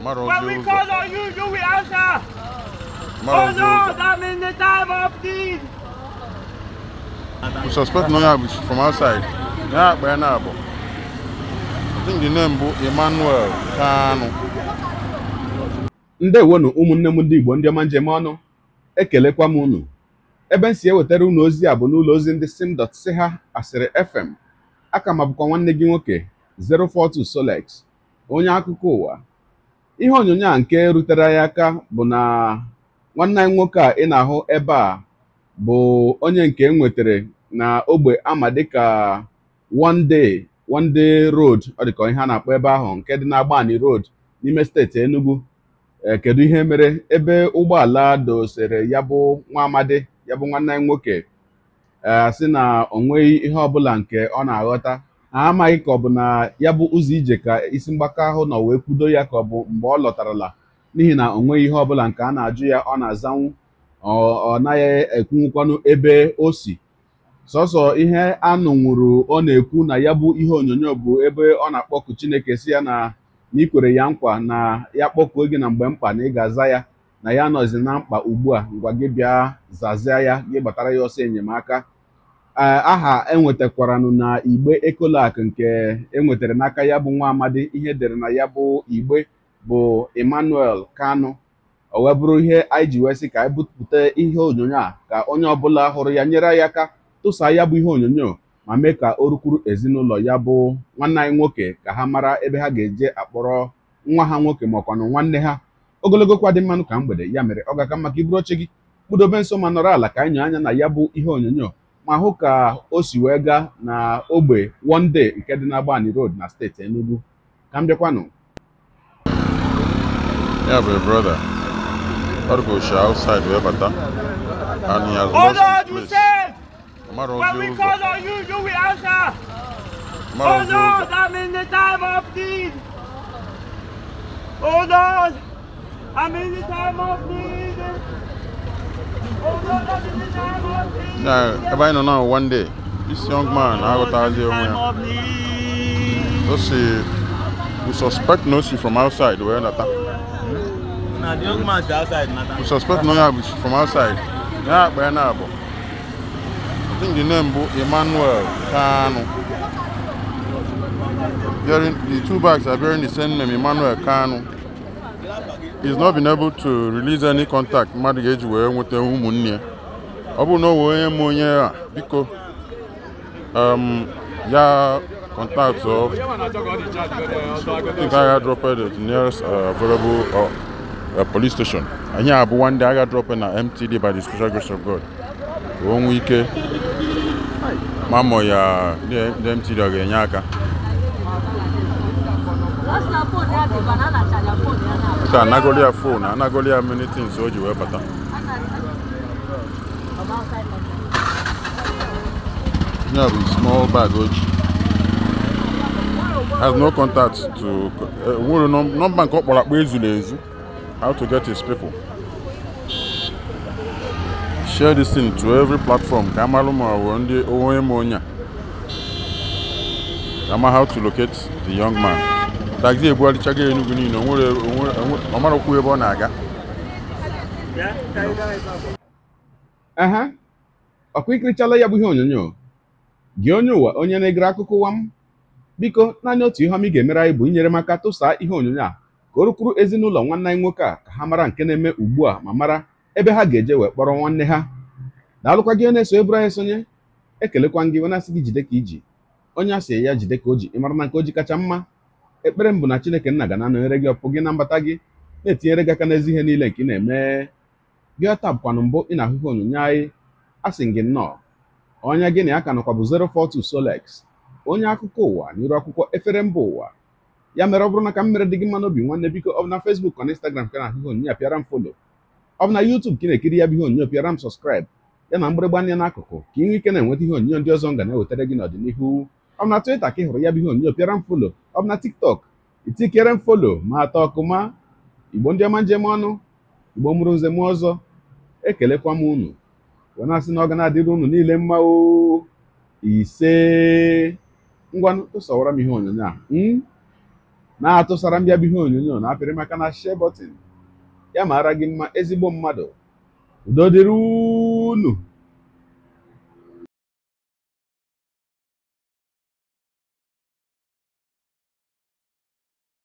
Tomorrow when we call on you, you will answer. Tomorrow oh no, that means the time of need. We suspect no ambush from outside. Yeah, by now. I think the name is Emmanuel Kanu. ndewonu ụmụnne m ndị igbo ndị ọma njem ọnụ ekelekwa m unu ebe m si ewetara unu ozi a bụ n'ụlọ ozi ndị simdot si ha asịrị fm aka m abụkwa nwanne gị nwoke 042 Solex onye akụkọ ụwa ihe onyonyo a nke rutere ya aka bụ na nwanne anyị nwoke a ị na-ahụ ebe a bụ onye nke enwetere na ogbe ama dịka one day one day road ọ dịka ihe a na-akpọ ebe ahụ nke dị n'Agbani road n'ime steeti Enugu eh, kedu ihe mere ebe ụgbọala dosere ya bụ nwa amadi ya bụ nwanne anyị nwoke eh, sị na o nweghị ihe ọbụla nke ọ na-aghọta amaghị ka ọ bụ na ya bụ ụzọ ije ka isi mgbaka ahụ nọ wee kwudo ya ka ọ bụ mgbe ọ lọtarala n'ihi na o nweghị ihe bụla nke a na-ajụ ya ọ na-azanwu ọ naghị ekwunwukwanụ ebe o si sọsọ ihe anụnwụrụ ọ na-ekwu na ya bụ ihe onyonyo bụ ebe ọ na-akpọku Chineke si ya na n'ikwere ya nkwa na ya kpọkuo gị na mgbe mkpa na ị ga-aza ya na ya nọzi na mkpa ugbu a ngwa gị bịa zazie ya gị gbatara ya ọsọ enyemaka aha enwetakwaranụ na igbe ekolak nke enwetara n'aka ya bụ nwa amadi ihe dere na ya bụ igbe bụ emmanuel kanu o wee bụrụ ihe anyị ji wee sị ka anyị bupụta ihe onyonyo a ka onye ọbụla hụrụ ya nyere ya aka tụsa ya bụ ihe onyonyo ma mee ka o rukwuru ezinụlọ ya bụ nwanne anyị nwoke ka ha mara ebe ha ga-eje akpọrọ nwa ha nwoke ọkwanụ nwanne ha ogologo kwa dị mmanụ ka mgbede ya mere ọ ga-aka maka iburu oche gị kpudobe nso ma nọrọ ala ka anyị nyere anya na ya bụ ihe onyonyo ma hụ ka o si wee gaa na ogbe one day nke dị n'Agbani Road na steeti Enugu ka m bịakwanụ ya brother ọrụgoshi outside wee bata and he has lost his place ọmara ozi ụzọ ọmara ozi Oh Lord, I'm in the time of need. Now, everybody know now one day, this young man, I got out there. Let's see, we suspect Nosi from outside. We're in attack. Now, the young man is outside. We suspect Nosi from outside. Yeah, but now, I think the name Emmanuel Kano. Bearing, the two bags are bearing the same name, Emmanuel Kano. is not been able to release any contact mmadụ ga-eji wee nweta ụmụnne ọ bụrụ na ọ wee onye m onye a biko um, ya contact of I think I uh, uh, uh, got dropped the nearest available police station. And abụwa ndị one day na MTD by the special grace of God. One ike Mama, yeah, ya the MTD ọ ga-enye aka. ka anagoli ya phone anagoli ya many things o ji wee bata ya bụ small bag o ji has no contact to nwere nọmba nke ọ kpọrọ akpa ezuru ezu how to get his people share this thing to every platform ka amalụ ma ọ ndị onwe ma onye a ama how to locate the young man taxi ebugharịchago Enugu niile ọ okwu ebe ọ na-aga aha ikirichala ya bụ ihe onyonyo gị onye ụwa onye na-egere akụkọ ụwa m biko naanị otu ihe ọma ị ga-emere anyị bụ inyere m aka tụsaa ihe onyonyo a ka o rukwuru ezinụlọ nwanne anyị nwoke a ka ha mara nke na-eme ugbu a ma mara ebe ha ga-eje wee kpọrọ nwanne ha daalụkwa gị na-eso eburu anyị esonye ekelekwa gị wena asị gị jide ka iji onye asị ya jide ka o ji ịmara na nke o ji kacha mma ekpere m bụ na chineke nna ga na-anọnyere gị ọpụ gị na mbata gị na-etinyere gị aka n'ezi ihe niile nke ị na-eme gị ọta bụkwanụ mbụ ị na-ahụhụ onyonyo anyị a sị gị nnọọ ọnya gị na ya ka nọkwa bụ 042 Solex onye akụkọ ụwa n'iru akwụkwọ efere mba ụwa ya mere ọ bụrụ na ka m mere dị gị mma n'obi nwanne biko ọ bụ na Facebook na Instagram ka na-ahụhụ onyonyo apịara m folo ọ bụ na YouTube ka ị na-ekiri ya bụ ihe onyonyo pịara m sọskraịb ya na mgbịrịgba anya n'akụkụ ka ị nwee ike na-enweta ihe onyonyo ndị ọzọ m ga na-ewetara gị n'ọdịnihu ọ bụ na Twitter ka ị hụrụ ya bụ ihe onyonyo pịara m folo ọ bụ na tiktok itikere m folo ma atọ ọkụma igbo ndị ọma njem ọnụ igbo mụrụ nze m ọzọ ekelekwa m unu wee na-asị na ọ ga na-adịrị unu niile mma o ise ngwanụ tụsawara m ihe onyonyo a hmm? na-atụsara m bihe ihe onyonyo na-apịrị maka na share button ya maara gị mma ezigbo mmadụ udo dịrị unu